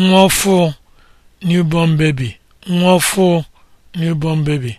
nwa ọfụụ newborn baby newborn baby